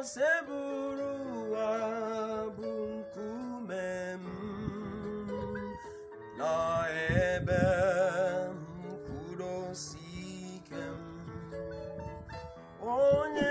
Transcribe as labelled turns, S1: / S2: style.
S1: Seburu bụrụ ụwa bụ nkume m na ebe mkpụrụosi ike m onye